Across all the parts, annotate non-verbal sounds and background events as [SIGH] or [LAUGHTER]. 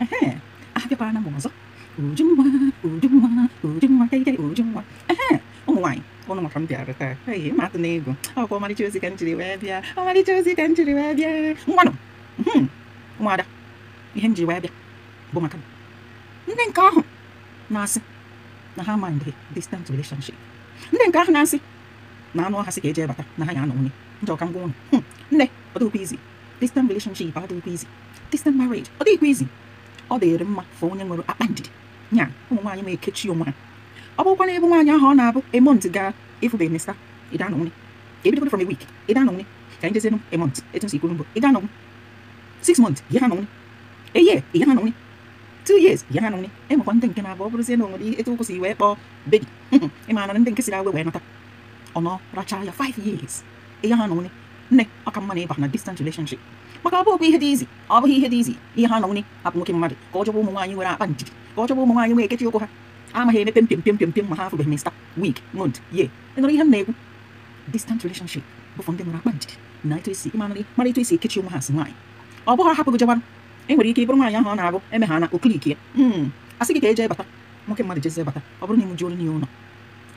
Ehe, abịakwara m ọzọ ujunwa ujunwa ujunwa kaikai ujunwa ụmụ nwanyị, ọnụ maka m bịara taa ee ma na ego ọmarịcha ka m wee bịa ọmarịcha ozi ka m wee ihe njiri na-asị na ha ma relationship ndị nke ahụ na-asị na anụ ọha sị ka ebata na ha ya anọ ndị ọka ngwa nne ọ izi distant relationship ọ dịghịkwa izi distant marriage ọ dịghịkwa izi ọ dịrị mma fa onye nwere akpa ndidi nya ụmụ nwaanyị ma ekechi onwe ha ọ bụrụkwa na ebe nwaanyị ahụ ọ na-abụ emont gaa ịfụbeghị mesa ịda anọ nwunye ka ebidogodo from a week ịda anọ nwunye ka anyị jezienụ emont etu nsi ikwuru mbụ ịda anọ nwunye six months ihe ha nọ nwunye a year ha nọ nwunye two years ihe ha nọ nwunye enwekwa ndị nke na-abụ ọ bụrụzie na o nwere etu wee kpọọ bebi ịmara na ndị nke siri awe wee nata ọ nọ rachaa ya five years ihe ha nọ nwunye ne aka mma na na distant relationship maka ọ bụ ihe dị izi ọ bụghị ihe dị izi ihe ha nọ nwunye hapụ nwoke mmadụ ka ọ chọba ụmụ nwaanyị nwere akpa njidi ka ọ chọba ụmụ nwaanyị nwee ekechi ụkwụ ha amaghị emepe mpem mpem mpem mpem ma ha afụbeghị mista wik mont ye ịnụrụ ihe m na-ekwu distant relationship bụfụ ndị nwere akpa njidi na etu esi ịmara mara etu esi ekechi onwe ha si nwaanyị ọ bụghị hapụ gị jebarụ e nwere ike ịbụrụ nwaanyị ahụ ọ na-abụ eme ha na oklik ya a sị gị ka e jee bata nwoke mmadụ jeze bata ọ bụrụ na ịmụji olu n'ihe ụlọ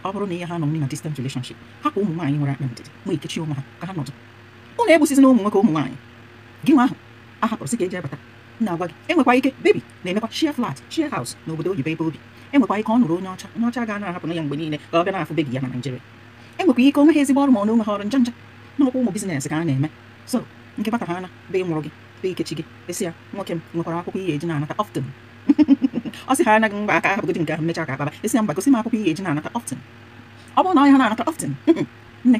ọ bụrụ na ihe ha nọ na distant relationship hapụ ụmụ nwaanyị nwere akpa ndidi ma ekechi onwe ha ka ha nọdụ ụlọ egbusizi na ụmụ nwoke ụmụ nwaanyị gị nwa ahụ ahapụrụ sị ka eji abata na-agwa gị enwekwa ike bebi na-emekwa shia flat shia house na obodo oyibo ebe obi enwekwa ike ọ nụrụ onye ọcha onye ọcha ga na ahapụ ya mgbe niile ka ọ bịa na-afụ bebi ya na Naịjirịa enwekwa ike onwe ezigbo ọrụ ma ọnụ onwe ha ọrụ nja nja n'ọkwa ụmụ ka a na-eme so nke bata ha ana be mụrụ gị be ikechi gị esi ya nwoke m nwekwara akwụkwọ ihe eji na-anata [LAUGHS] ọ sị ha anaghị mgba aka ka akpaba esi ihe eji na-anata ọ bụrụ na ọnya ha na-anata [LAUGHS] nne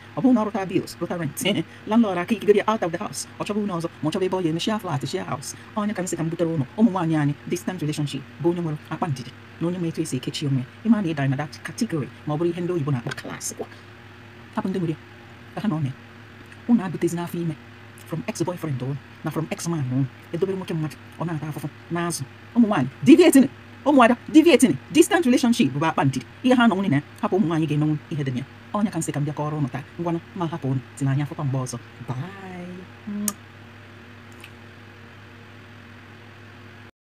upon all of thy bills, both thy rents. Landlord, I kick you out of the house. Or trouble knows, much of a boy in the share flat, share house. On your camisa cambuterono, omuanyani, distant relationship, bonumero, apantity. No one may trace a catchy on me. Iman a dime that category, mobile hendo, you bona class. Happened to me. Kahanone. Una advertise na fime. From ex-boyfriend on, na from ex-man on. Edobe mo kemat, ona ta afofo, nazo. Omuanyani, deviating it ụmụada deviating distant relationship bụ akpa ntị ihe ha nọ nwunye na hapụ ụmụ nwaanyị ga-emenwu ihe dị ya ọnya ka nsị ka m bịa kọrọ ụnụ taa ngwanụ ma hapụ ụnụ si n'anya afụkwa mgbe ọzọ bye